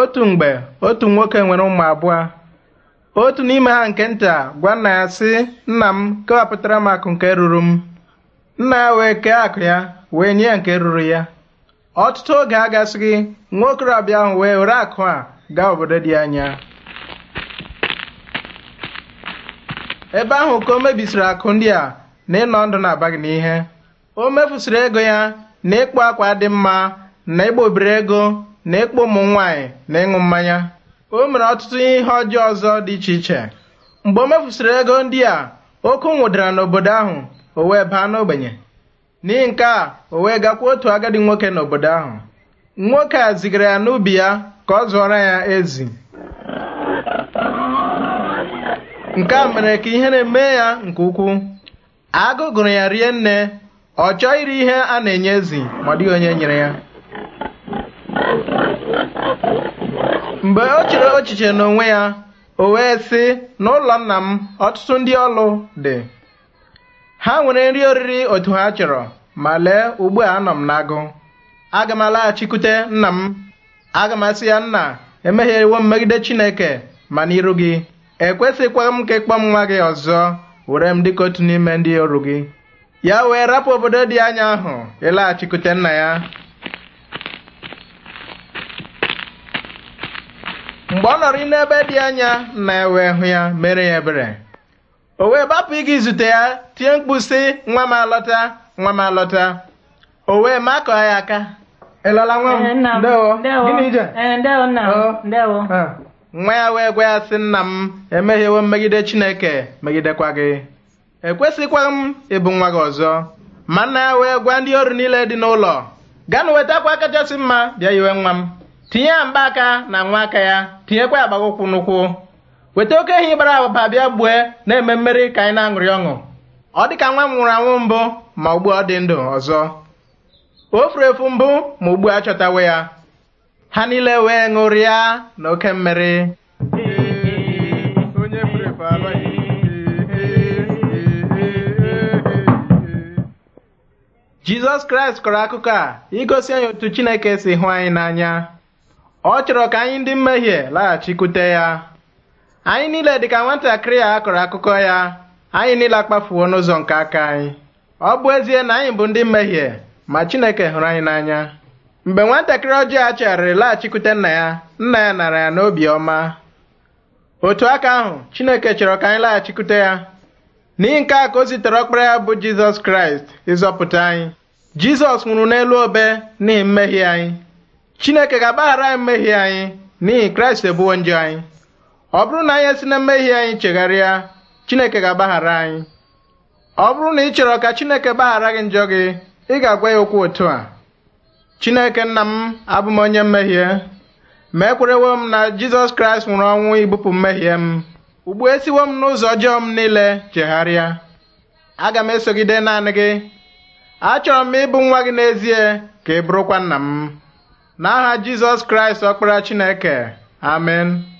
otu mgbe otu nwoke nwere ụmụ abụọ otu n'ime ha nke nta gwa nna ya sị nna m kewapụtara m akụ nke ruru m nna ya wee kee akụ ya wee nye ya nke ruru ya ọtụtụ oge agasịghị nwa okorobịa ahụ wee were akụ a gaa obodo dị anya ebe ahụ ka o mebisiri akụ ndị a na ịnọ ndụ na-abaghị n'ihe o mefusiri ego ya na ịkpụ akwa dị mma na ịgba obere ego na ịkpọ ụmụ nwaanyị na ịṅụ mmanya o mere ọtụtụ ihe ọjọọ ọzọ dị iche iche mgbe o mefusịrị ego ndị a oke nwụdara n'obodo ahụ o wee baa n'ogbenye n'ihi nke a o wee gakwa otu agadi nwoke n'obodo ahụ nwoke a zigara ya n'ubi ya ka ọ zụọrọ ya ezi nke a mere ka ihe na-eme ya nke ukwuu agụ gụrụ ya rie nne ọ chọọ iri ihe a na-enye ezi ma ọ dịghị onye nyere ya Mgbe o chere ochiche n'onwe ya, o wee sị, n'ụlọ nna m ọtụtụ ndị ọlụ dị. Ha nwere nri oriri otu ha chọrọ ma lee ugbu a anọ m n'agụ. Aga m alaghachikwute nna m. Aga m asị ya nna emehiewo m megide Chineke ma n'iru gị. Ekwesịkwaghị m ka ịkpọ m nwa gị ọzọ were m dịka otu n'ime ndị ọrụ gị. Ya wee rapụ obodo dị anya ahụ ịlaghachikwute nna ya. mgbe ọ nọrọ n'ebe dị anya nna e wee hụ ya mere ya ebere o wee gbapụ ịga izute ya tie mkpu si, nwa m alọta nwa m alọta o wee ma kọọ ya aka ịlọla nwa m eh, ndewo eh, oh. ah. nwa ya wee gwa ya sị nna m m mmegide chineke megidekwa gị ekwesịkwa m ịbụ nwa gị ọzọ ma nna ya wee gwa ndị ọrụ niile dị n'ụlọ gaa na wetakwa kachasị mma bịa yiwe nwa m tinye ya mgbaaka na nwa aka ya tinyekwa ya agbaga n'ukwu. n'ụkwụ weta oke ehi gbara agbaba bịa gbue na-eme mmeri ka anyị na-aṅụrị ọṅụ ọ dị ka nwa m nwụrụ anwụ mbụ ma ugbu ọ dị ndụ ọzọ o furu efu mbụ ma ugbu a chọtawe ya ha niile wee ṅụrịa na oke mmeri jizọs kraịst kọrọ akụkọ a igosi anyị otu chineke si hụ anyị n'anya ọ chọrọ ka anyị ndị mmehie laghachikwute ya anyị niile dịka nwatakịrị a kọrọ akụkọ ya anyị niile akpafuo n'ụzọ nke aka anyị ọ bụ ezie na anyị bụ ndị mmehie ma Chineke hụrụ anyị n'anya mgbe nwatakịrị ọjọọ a chegharịrị laghachikwute nna ya nna ya nara ya n'obi ọma otu aka ahụ Chineke chọrọ ka anyị laghachikwute ya n'ihi nke a ka o zitere ọkpara ya bụ Jizọs Kraịst ịzọpụta anyị Jizọs nwụrụ n'elu obe n'ihi mmehie anyị chineke ga-agbaghara anyị mmehie anyị n'ihi kraịst ebuwo njọ anyị ọ bụrụ na anyị esi na mmehie anyị chegharịa chineke ga-agbaghara anyị ọ bụrụ na ị chọrọ ka chineke gbaghara gị njọ gị ị ga-agwa ya okwu otu a chineke nna m abụ m onye mmehie ma ekwerewo m na jizọs kraịst nwụrụ ọnwụ ibupụ mmehie m ugbu esiwo m n'ụzọ ọjọọ m niile chegharịa aga m esogide naanị gị achọrọ m ịbụ nwa gị n'ezie ka ị bụrụkwa nna m N'aha Jizọs Kraịst ọkpara Chineke amen